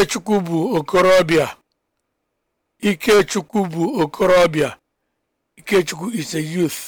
Ikechukwu bụ okorobịa Ikechukwu bụ okorobịa Ikechukwu is a youth